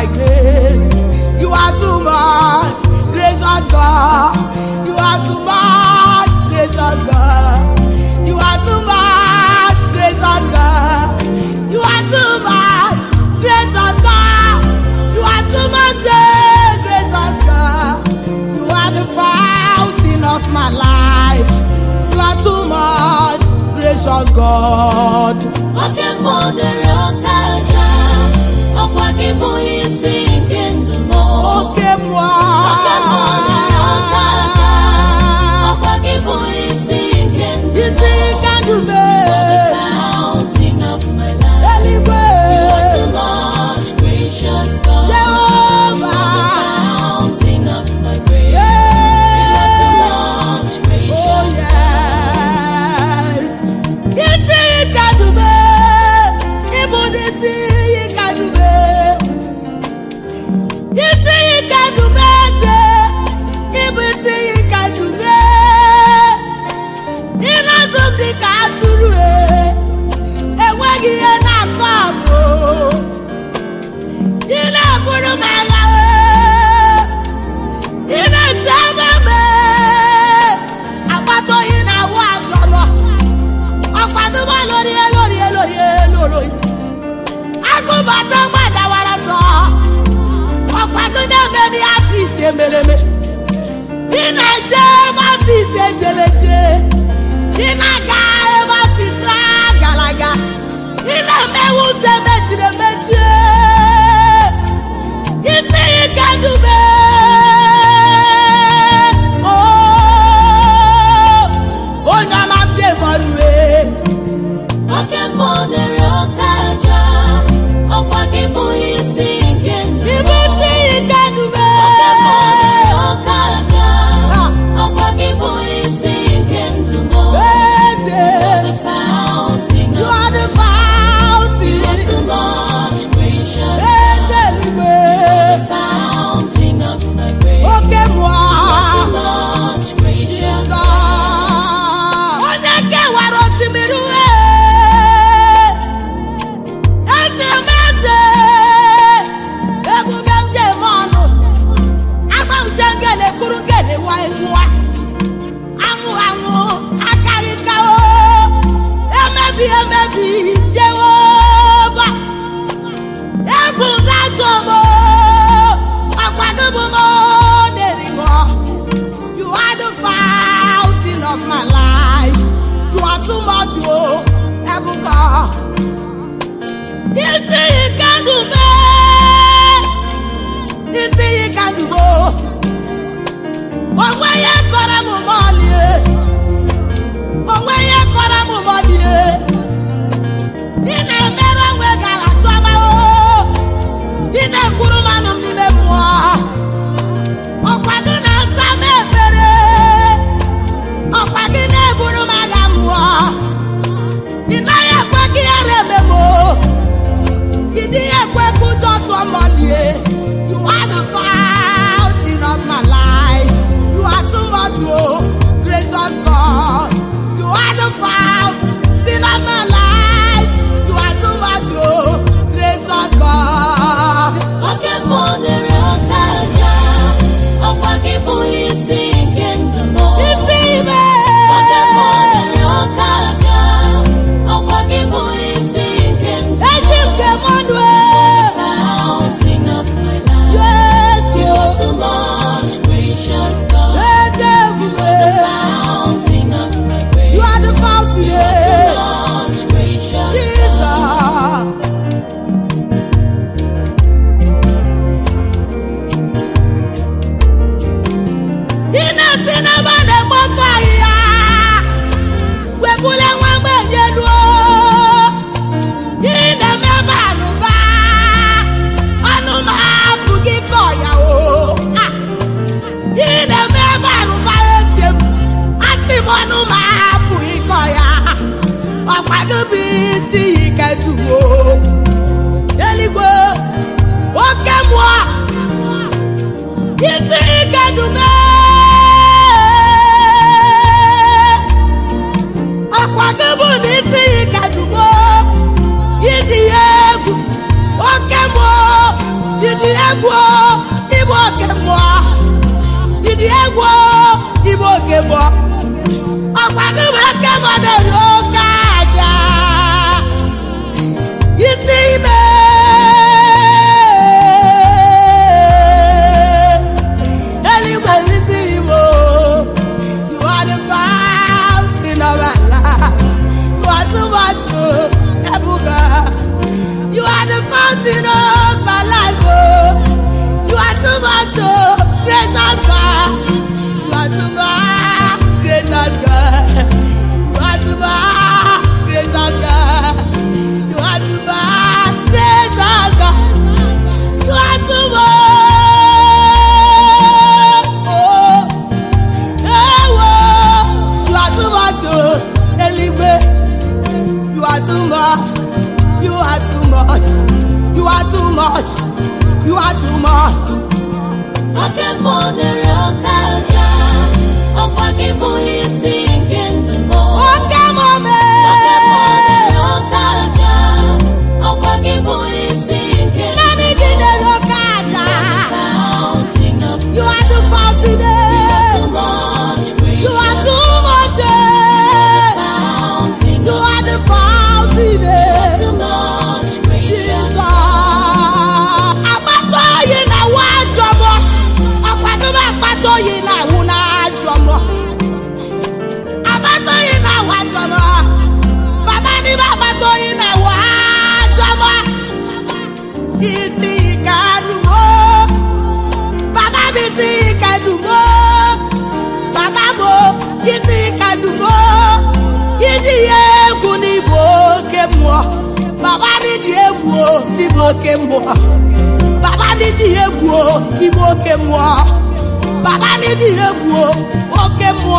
by grace. You are too much, gracious God. You are too much, gracious God. You are too much, gracious God. You are too much, gracious God. You are too much, eh, gracious God. You are the fountain of my life. You are too much, gracious God. Okay, mother, okay. ọkwa gị bụghị lórí ẹ lórí ẹ lórí ẹ lórí. agụbata gbadawara sọ ọkpagide meri asịsị emereme ị na-eje ebe asịsị alugo onwe ya isi agụbụisi ikejuwo eluigwe oke mmụọ isi ikedume continent. Oh. agbata oyi na-awụ n'ajọ mmụọ agbata na-awụ ajọ baba ni agbata oyi na-awụ ajọ mmụọ isi ike adumo baba m isi ike adumo baba m isi ka adumo iji ya egwu ibo oke mmụọ baba n'iji egwu n'ịbụ oke mmụọ baba n'iji egwu n'ịbụ oke mmụọ baba n'ịdị egwu oke mụ